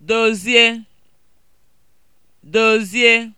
dozie dozie